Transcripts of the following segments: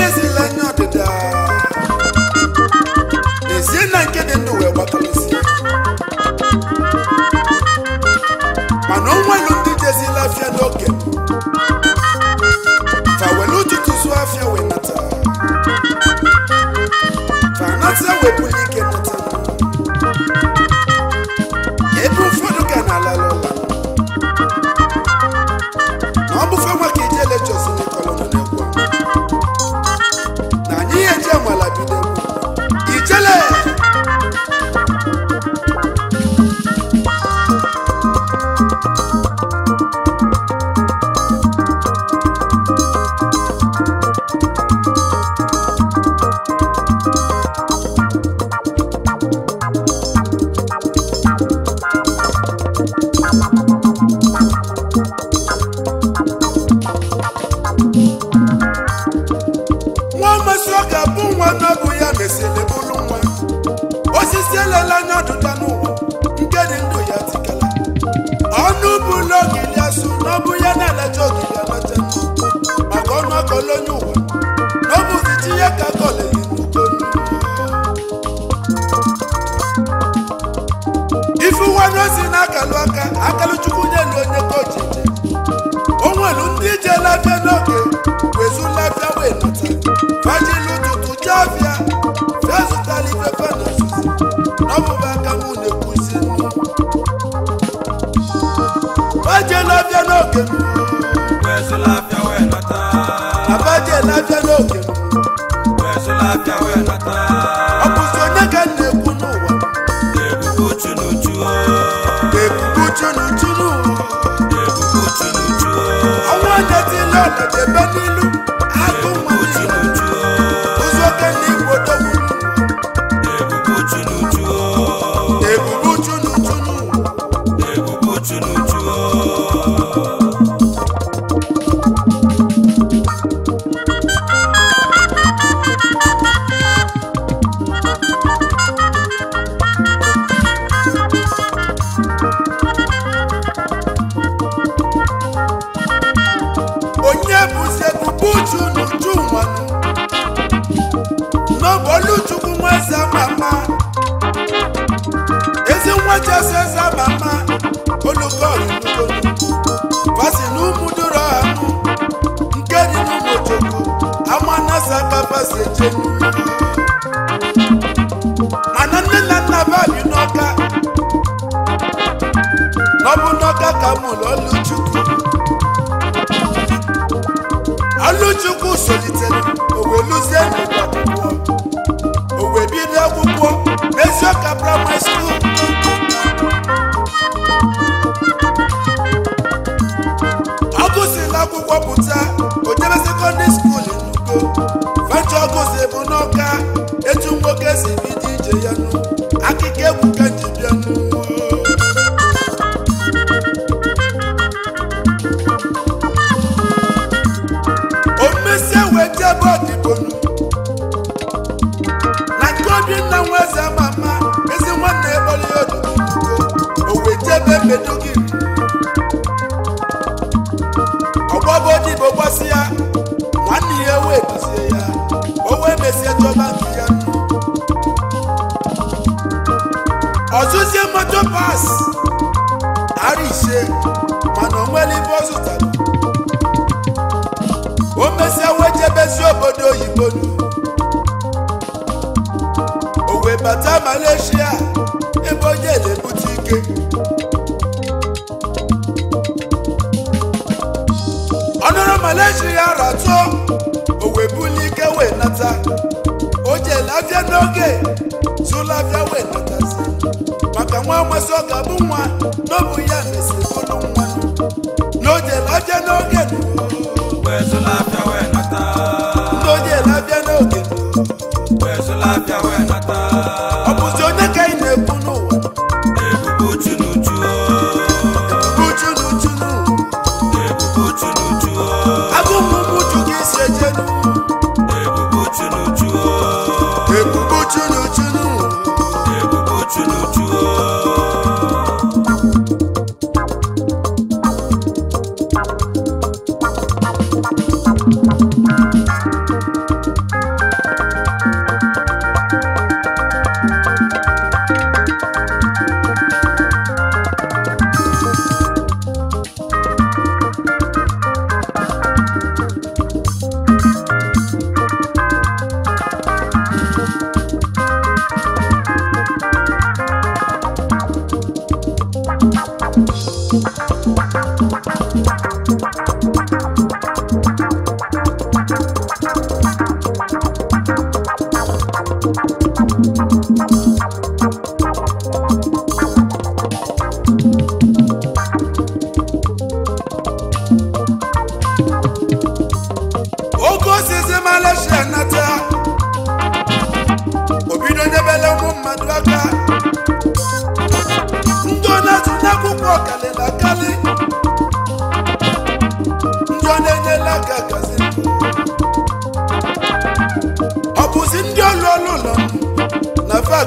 Iglesia ile anya ọdịda ezie na nke dị ndụ wee gbatalesi mana onwelu ndị jezila afịa n'oge fa welu ụtụtụ zuo afịa wee nata fa nata wepụla ike nata olóyún wẹ̀ lọ́bùsì tí yẹ kakọ̀ lè yìnbó tó ní. ifụwanụ si na-akalụ aka akalụchukwu nye na onye kọji o nwere ndị ije labịa n'oge wezu labịa wee nata fajilu tutu chavia fia zụtara ife fana ozuzi n'ọbụba aka m na-ekwuzi nnu faje labịa n'oge wezu labịa ọ bụ onye ka na-ekwu n'ụwa ebube uchu n'ụwa ọnwa onye dị ile n'ilu ebe odibonu na nke obi nna nwa eze ama ama ezi nwanne ebere ya odudugo o wee jebe mbedo gị ọgbọbụ odibo gbasi ya nwanne ya wee duzie ya o wee mesie chọba nke ya ọzụzie moto pas ara ise mana o nwere ibe ọ zụtara ebezi obodo oyibo o wee bata Malaysia ebe onye na-ebute ike ọnụrụ Malaysia ratụ o wee ike wee nata o jee lafịa n'oge tụlafịa wee natazi maka nwa amasị ọ ga-abụ nwa n'obu ya mesi bụrụ nwa na o jee lafịa n'oge you know mmadụ aka ndị ọ na akwụkwọ karịrị ndị ọ ndị enyela aka gazi ọ bụzi ndị ọlụ ọlụ ụlọ na fa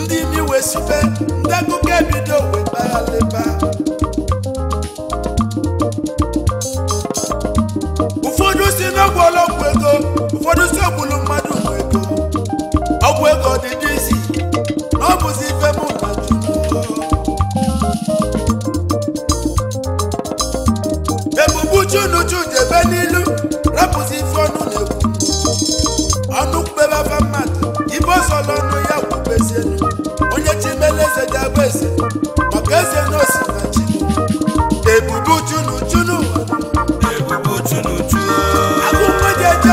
ndị imi wee sibe ndị akụkọ ebido wee kpaghalịba ọla ọnụ ya kwubezie onye chimeleze ji abụ eze maka eze na osinachi ebubu chunu chunu ebubu chunu chunu agụkwe ji eje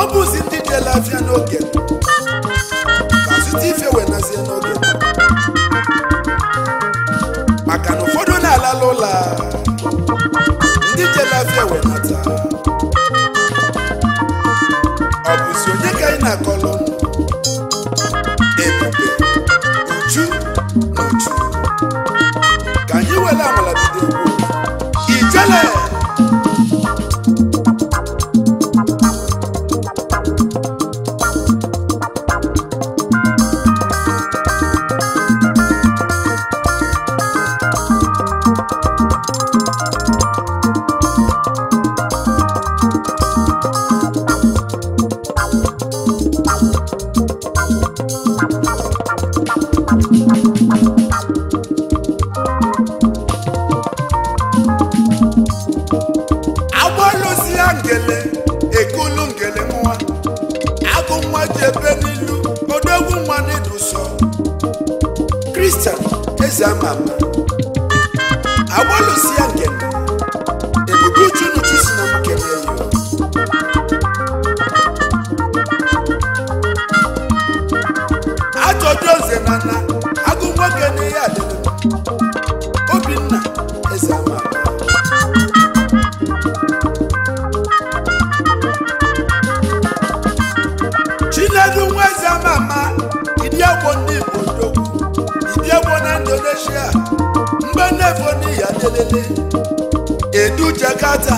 ọ bụ ndị jela afịa n'oge ka zụta ife wenazie n'oge maka na ụfọdụ na-alala ụlọ a. scatter.